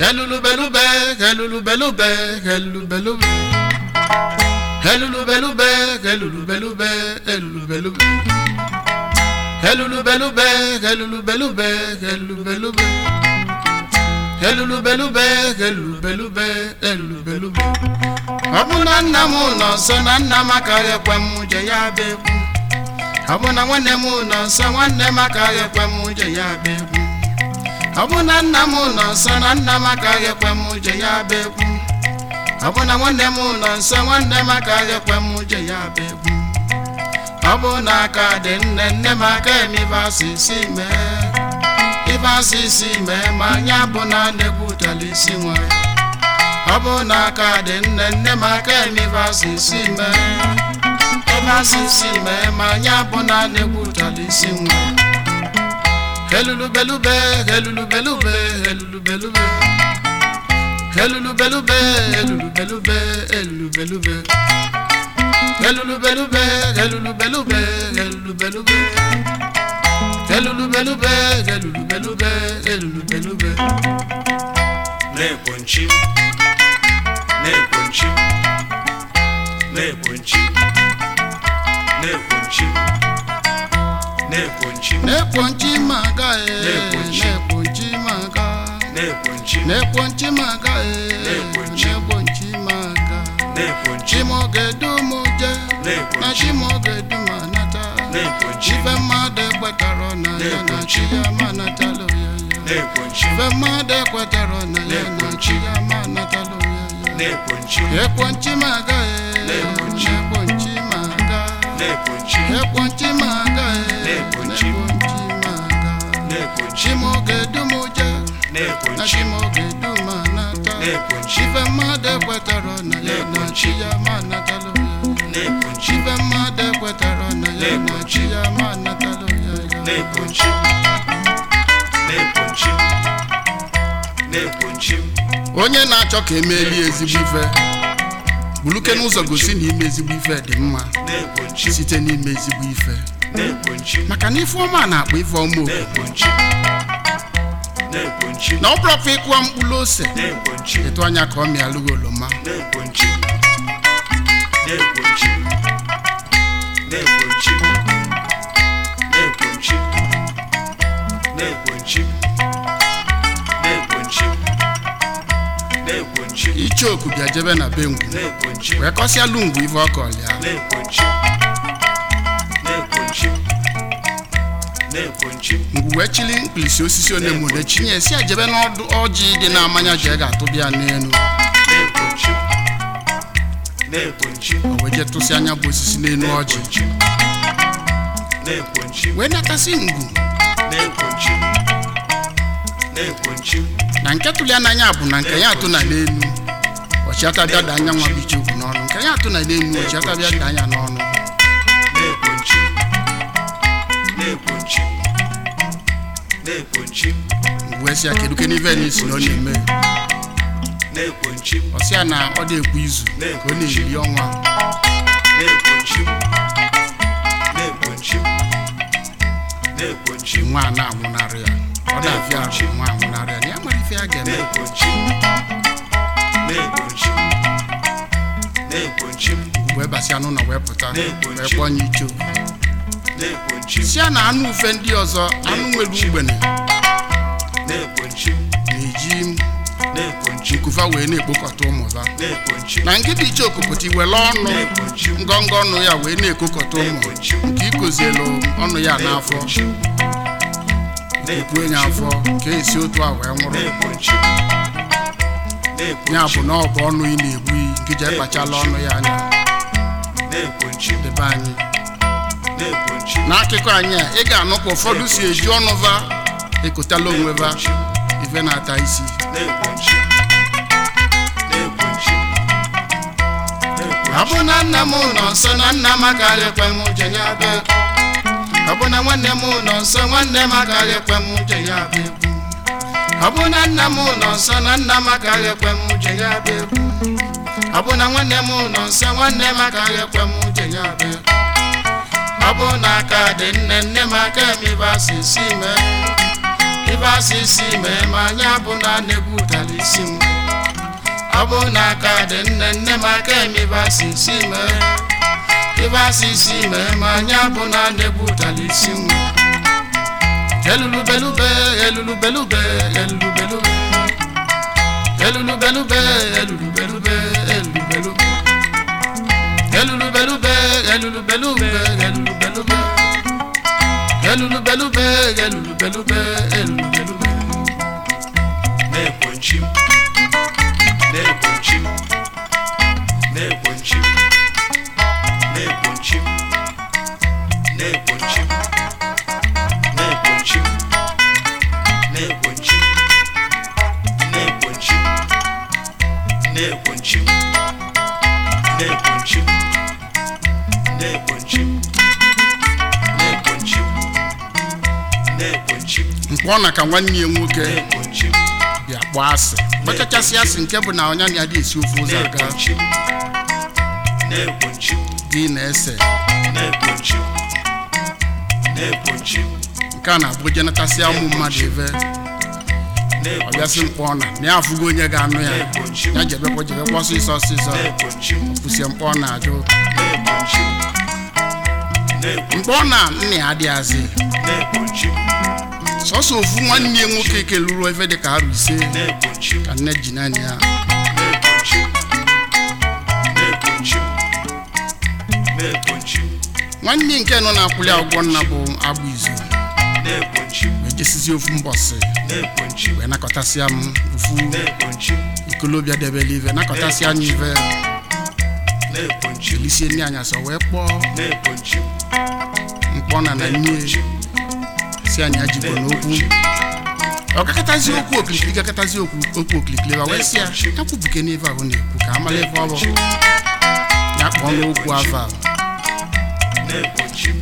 Helulubelube, helulubelube, helulubelube. Helulubelube, helulubelube, helulubelube. Helulubelube, helulubelube, helulubelube. Helulubelube, helulubelube, helulubelube. Ọ bụ na nna m nọ nso na nna m akaghị ekwe m je ya bụ egwu. Ọ bụ na nwanne m nọ nso nwanne m akaghị ekwe m je ya bụ egwu. ọbụna nna m nọ nsọ na nna m agaghị ekwe m uche ya bụ ekwu ọ bụ nwanne m nọ nsọ nwanne m agaghị ekwe m uche ya bụ ekwu ọ bụ na aka dị nne nne m aka eme ibe asị isi mee ibe asị mee ma anyị bụ na na-egwutela isi nwa ọ bụ aka dị nne nne m aka eme ibe asị isi mee ibe asị mee ma anyị bụ na na-egwutela isi nwa Kelulubelube, kelulubelube, kelulubelube. Kelulubelube, kelulubelube, kelulubelube. Kelulubelube, kelulubelube, kelulubelube. Kelulubelube, kelulubelube, kelulubelube. Na-ekponchi, na-ekponchi, na-ekponchi, na-ekponchi, na-ekponchi. Na-ekponchi ma na-ekpuchi maka na-ekpuchi maka eh. na-ekpuchi maka chimogedu m je na chimogedu m anata ife mmadụ ekwetara na ya na chi ya ma anatala ya ife mmadụ ekwetara na ya na chi ya ma anatala ya maka maka maka chimogedum ụja na chimogedum anata mmadụ ekwetara na ya na chi ya ma anatalụ ya chife mmadụ ekwetara na ya na chi ya ma anatalụ ya onye na-achọ ka emeli ezigbo ife buluke n'ụzọ gosi na ime ezigbo ife dị mma site n'ime ezigbo ife maka na ifeọma na-akpọ ifeọma oku na ọ bụrụkwa ịkụwa mkpụrụ ose etu anya ka ọ mịalụghị oloma ichoku bịa jebe na be ngwu wee kọsịa lungwu ife ọkọlịa wee chili pilisi osisi onemone chinye si ejebe n'ọdụ ọjị dị na-amanya ji ga-atụbịa n'elu o wee je tụsị anya bụ osisi n'elu ọjị wee natasị ngwu na nke tụli n'anya bụ na nke ya atụ na n'elu ọchịata bịa da anya nwa bụ ichekwu n'ọrụ nke ya atụ na n'elu ọchịata bịa da anya n'ọrụ na-ekponchi m wee sị ya na ọ na-eme na na ọ na-ekwu izu ka ọ na-eri ọnwa na-ekponchi na anwụnarị ya ọ na-afịa nwa anwụnarị ya na ya nwere ife a ga-eme na-ekponchi m na n'ụlọ wee pụta wee kpọọ nye ichoo sia na anụ ufe ndị ọzọ anụ nwere ugbene na-eji nkufa wee na-ekpokọta ha na nkịta iche okopụta iwere ọnụ ngọngọ ọnụ ya wee na-ekokọta ụmụ nke ikozielu ọnụ ya n'afọ okpue ya afọ ka esi otu a wee nwụrụ ya bụ na ọ ọnụ ị na-egbu iyi nke ji ekpachala ọnụ ya anya debe anyị n'akụkọ anyị a ị ga-anụkwa ụfọdụ si eji ọnụ va ekotala onwe va ife na-ata isi Abụna bụ nna m nọ nsọ na nna m agaghị ekwe m uche ya bịa ọ nwanne m nọ nsọ nwanne m agaghị ekwe m uche ya bịa ekwu ọ bụ nna m nọ nsọ na nna m agaghị ekwe m uche ya bịa ekwu nwanne m nọ nsọ nwanne m agaghị ekwe m uche ya bịa ekwu ọ bụ na aka dị nne nne m aka m ibasisi me ibasisi me ma anyị abụ na na-egwutara isi m ọ bụ na aka dị nne nne m aka m ibasisi me ibasisi me ma anyị abụ na na-egwutara isi m elulubelube elulubelube elulubelube elulubelube elulubelube elulubelube belube gelulu belube gelulu belube gelulu belube gelulu belube gelulu belube na na na nke na ka nwanne ya nwoke ya kpọọ asị kpechachasị asị nke bụ na ọnya na adị esi ofe ụzọ aga dị na-ese nke a na-abụ jenatasị ụmụ mmadụ ebe ọ bịasị mkpọ na na ya afụgo onye ga-anụ ya ya jebekwa jebekwa ọsịsọ ọsịsọ mkpọ ọ na-ajụ mgbe ọ na nna ya adịghazị sọsọ ofu nwanne ya nwoke keluru efe dị ka arụ ise ka nne ji naanị ya nwanne nke nọ na-akwụli agwọ nna bụ agbụ izu ejesizi ofu mbọsị wee nakọtasịa m ofu ikolobịa isi nri anyasọ wee kpọọ mkpọ na na nne si anyị ajibo n'okwu ọkakatazi okwu okirikiri gakatazi okwu okirikiri wa wee si ya akwụbuke n'ebe ahụ na-ekwu ka amala ebe ọ ya kpọọ n'okwu afọ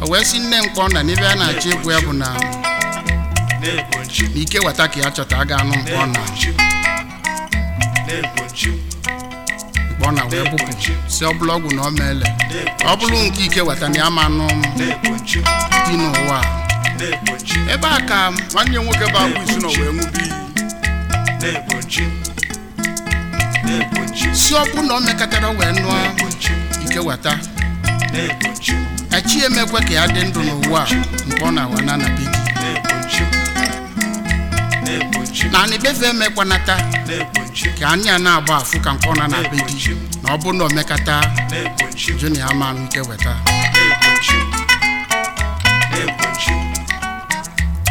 a o wee si nne mkpọ na n'ebe a na-achọ ekwu ya bụ na ike weta ka ya chọta a anụ mkpọ na ọ na wee si ọ bụla ọgwụ na ọ meele ọ bụrụ nke ike weta na ya ma nụ dị n'ụwa ebe a ka nwanne ya nwoke bụ abụ isi na wee ṅụbe iyi si ọ bụ na ọ mekatara wee nụọ ike weta echi emekwe ka ya dị ndụ n'ụwa mgbe ọ na-awa na anabi gị anị befe emekwanata ka anya na-agba afụ ka nkwọ na na be di na ọ bụrụ na omekata junior ama nke weta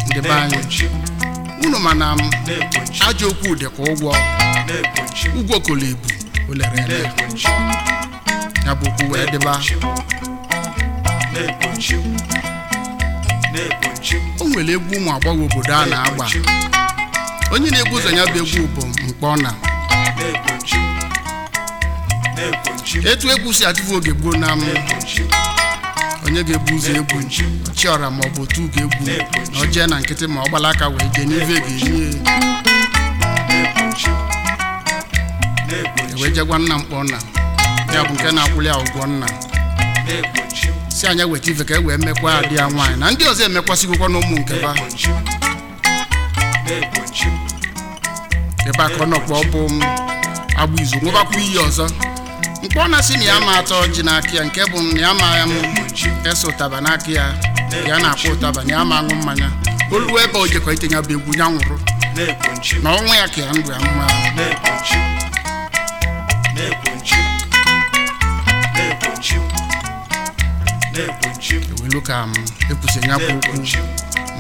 ndị be anyị unu ma na ajọ okwu ka ụgwọ ụgwọ kolo ibu olere ele ya bụ okwu wee dịba o nwere egwu ụmụ agbọghọ obodo a na-agba onye na-egbu ụzọ ya bụ egwu bụ mkpọ na etu egwu si adịbu oge gboo na m onye ga-egbu ụzọ egwu chiọra ma ọ bụ otu ga-egwu na ọ na nkịtị ma ọ gbala aka wee jee n'ive ga-enye ewe jegwa nna mkpọ nna ya bụ nke na-akwụli ya nna si anya weta ife ka e wee mekwa adị ya nwaanyị na ndị ọzọ emekwasịgokwa n'ụmụ nke ba ebe aka ọ nọkwa ọ bụ izu nwebakwa iyi ọzọ mkpọ na-asị na ya ma atọ ji n'aka ya nke bụ na ya ma ya ese ụtaba n'aka ya ya na-akpọ ụtaba na ya ma aṅụ mmanya olu ebe o ite ya bụ egwu ya nwụrụ na ọnwụ ya ka ya ndụ ya mma ewelu ka m ekwusi ya bụ okwu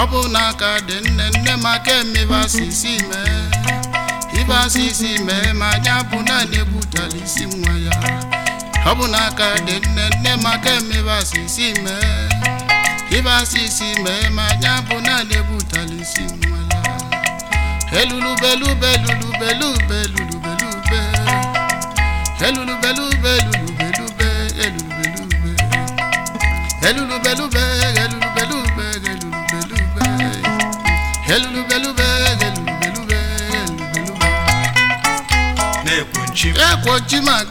ọ bụ ka dị nne nne m aka emebasisi mee ibasisi mee ma anyị abụ naanị egbutala isi nwa ya ọ bụ ka dị nne nne m aka emebasisi mee ibasisi mee ma anyị abụ naanị egbutala isi nwa ya elulubelubelubelubelubelube elulubelubelubelube elulubelube elulubelube elulubelube belulu belu belelu belu belu belu na ma ma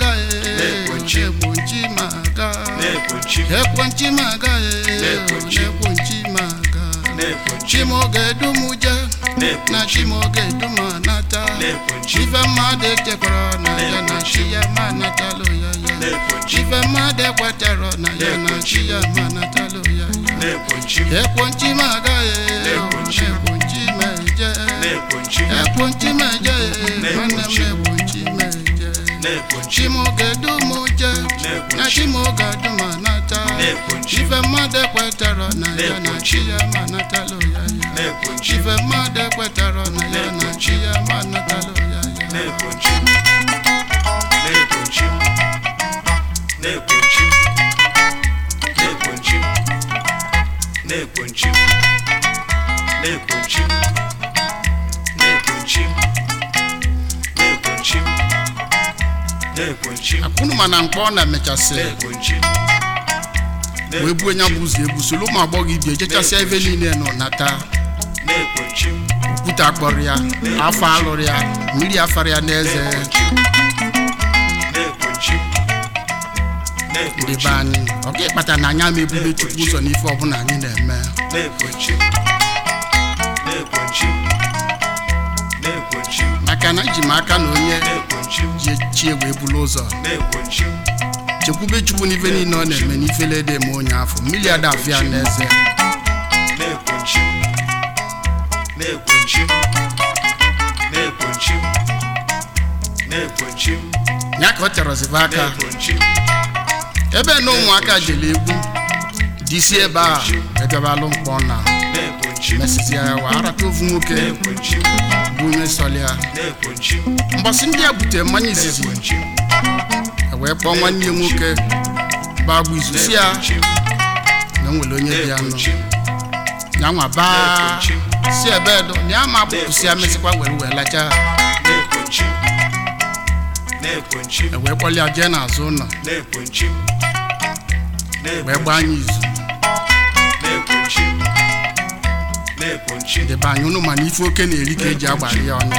ma ma na ife mmadụ echekwara na ya na chi ya ma ya ya ife mmadụ ekwetara na ya na chi ya ma ya ya meje ekpunchi meje nwanne m ekpunchi meje chimogedumuje na chimogeduma nata ife mmadụ kwetara na ya na chi ya ma ya na ya na chi ya ma ya ma na mkpa ọ na-emechasị wee buo nya bụ ụzọ ụmụ agbọghọ ibi ejechasịa ebe niile nọ nata okwute akpọrọ ya afọ alụrụ ya mmiri afara ya n'eze ndị be anyị ọ ịkpata na anya ama ebube chukwu ụzọ n'ife ọbụla anyị na-eme na na na maka na iji m aka na onye ji chie wee bulu ụzọ chekwube chukwu n'ife niile ọ na-eme n'ifele dị ma onye afọ mmiri a afịa na eze ya ka ọ tịarọzibe aka ebe na ụmụaka jere egwu disi ebe a ebiabalụ mkpọ na mesịzịa ya wee arata ovu nwoke bụ onye sọlịa mgbasị ndị a butere mmanya izizi Ewee kpọọ nwanne ya nwoke baa bụ izuzi ya na nwere onye dị ya nọ ya nwa baa si ebe dụ, na ya ma abụpụsị ya mesịkwa were wee lacha ha ewee kpọlịa jee n'azụ ụlọ wee gbaa anyị izu debe anya ụnụ mana ife oke na-eri ka eji agbara ya ọnụ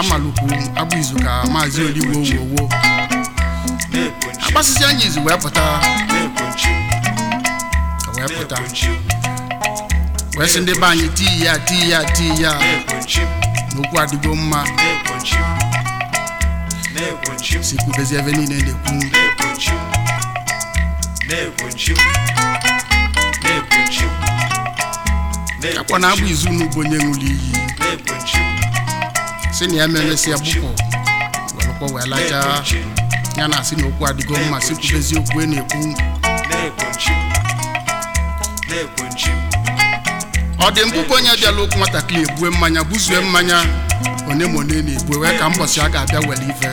amalụkwu abụ izu ka maazị oligbo owowo agbasịsị anya izu wee pụta wee pụta wee sị ndị be anyị tii ya tii ya tii ya n'okwu adịgo mma si kwubezi ebe niile na-ekwu akwa na agba izu n'ugbo onye ṅụrụ iyi si na ya melesi agbụkpọ welụkwa wee lachaa ya na asị na okwu adịgo mma si kwubezi e na-ekwu ọ dị mkpụkpọ onye bịala okwu nwatakịrị ebue mmanya buzue mmanya onye ma one na-ebue wee ka mbọsị a ga-abịa were ive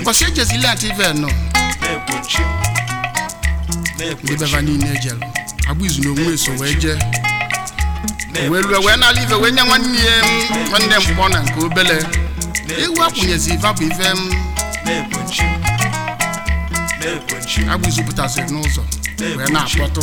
mbọsị ejezili ata ive nọ ndị beva niile ejelu agba izu na onwe eso wee jee wee rue wee nala ife wee nye nwanne ya mm, nwanne mkpọ na nke obele ewu akwụnyezi ife bụ ife m mm. agbụzupụtasịrị n'ụzọ wee na-akpọtụ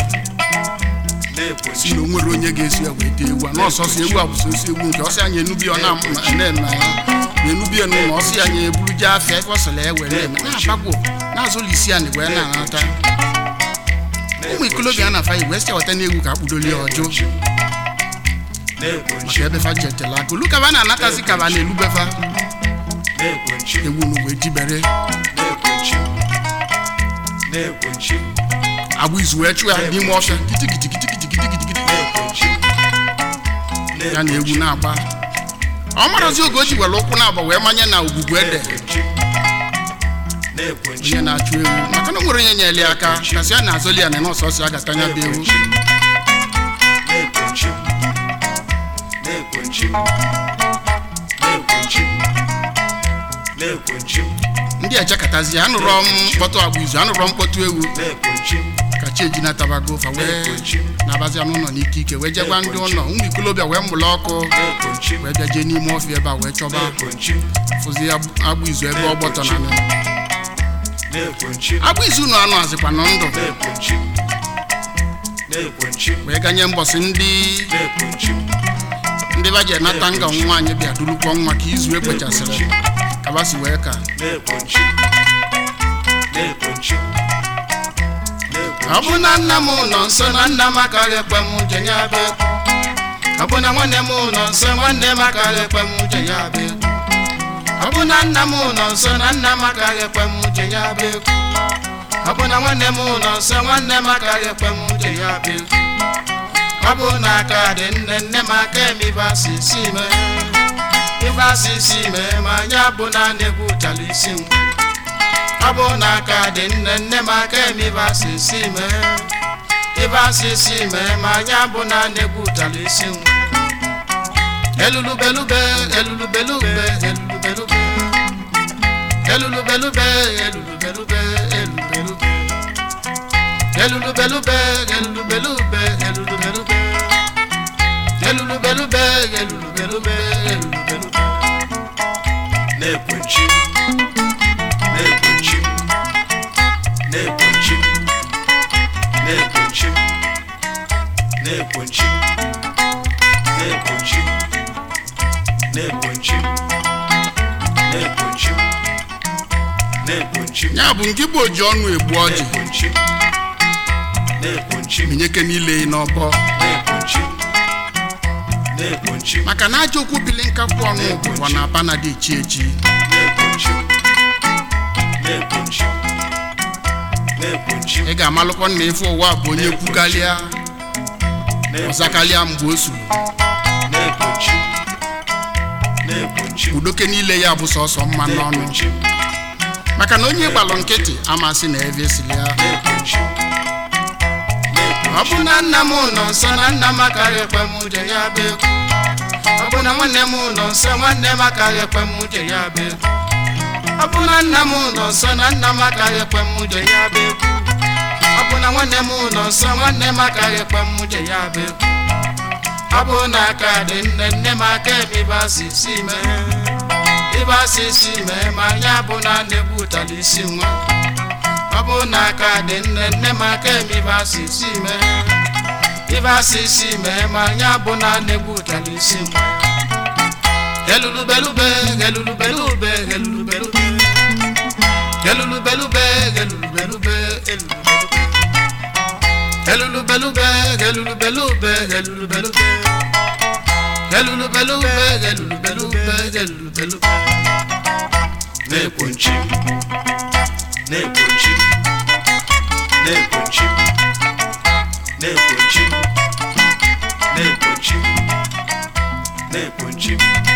si na o nwere onye ga-esi ya wee dee ewu a n'ọsọsọ ewu abụsosi ewu nke ọsị anya enubi ọ na-eme ya na-enubie n'ụlọ ọsị ya nye eburu jee afịa ebe ọ sịrị ya were eme na-abagwo na-azụlụ isi anyị wee na-anata ụmụ ikolobịa na-afa wee si eweta n'egwu ka akpụdoli ọjụ ebe fa jetela akụlụ kaba na-anatazi kaba na-elubefa ewu wee jibere agwa izu wee chụ ya n'ime ọfịa kitikitikitikitikitikitikiti ya na ewu na-agba ọ marazi oge o ji were ụkwụ na-agba wee manye na ogugu ede onye na-achụ ewu maka na o nwere onye nyere ya aka kasị ya na-azọli ya na nọọsụ ọsọ ya gata anya bụ ewu ndị ejekọtazi anụrụ mkpọtụ agba izu anụrụ mkpọtụ ewu kacha ejina tabago fa wee na-abazi anụ ụlọ n'ike ike wee jegwa ndị ụlọ ụmụ ikolobịa wee mụrụ ọkụ wee bịa n'ime ọfịa ebe a wee chọba fụzi agba izu ebe ọgbọtọ na anụ agba izu ụlọ anụ azịkwa na ndụ wee ganye mbọsị ndị ndị ba ji anata nga nwa anyị bịa dulukwa nwa ka izu ekpochasịrị kabasi wee ka ọ bụ na nna m nọ nso na nna m akarị ekwe m uche ya bụ ekwu ọ bụ na nwanne m nọ nso nwanne m akarị ekwe m uche ya bụ ekwu ọ bụ na nna m nọ nso na nna m akarị ekwe m uche ya bụ ekwu ọ bụ na nwanne m nọ nso nwanne m akarị ekwe m uche ya bụ ekwu ọ bụ na aka dị nne nne m aka eme ibe asịsị ime ibe asịsị ime ma anyị abụ naanị egwu chara isi m ọ bụ na aka dị nne nne m aka eme ibe asịsị ime ibe asịsị ime ma anyị abụ naanị egwu chara isi m elulubelube elulubelube elulubelube elulubelube elulubelube elulubelube elulubelube elulubelube elulubelube na-ekpuchi ya bụ nke igbo ji ọnụ egbu ọjị minyeke niile n'ọbọ maka na ajọ okwu bili nkakwu ọnụ bụkwa na aba na dị echi echi ị ga-amalụkwa na ife ụwa bụ onye kwukalịa ọzakalịa mgbe o udoke niile ya bụ sọsọ mma n'ọnụ maka na onye gbalụ nkịtị amasị na ebe ya ọ bụ na nna m nọ na nna m akarịkwa m ya ọ bụ na nwanne m ụlọ nsọ nwanne m akaghị ekwe m je ya bụ egwu ọ bụ na nna m nọ nso na nna m akaghị ekwe m je ya bụ egwu ọ bụ na nwanne m ụlọ nsọ nwanne m akaghị ekwe m je ya bụ egwu ọ bụ na aka dị nne nne m aka ebe asịsị mee ebe asịsị ma anya bụ na na-egwutala isi nwa ọ bụ na aka dị nne nne m aka ebe asịsị mee ibe asị isi mee ma anyị abụ na na-egbutala isi m gelulubelube gelulubelube gelulubelube gelulubelube gelulubelube gelulubelube gelulubelube gelulubelube gelulubelube gelulubelube gelulubelube na-ekwo nchi na-ekwo nchi na-ekwo nchi na-ekwo nchi Chief.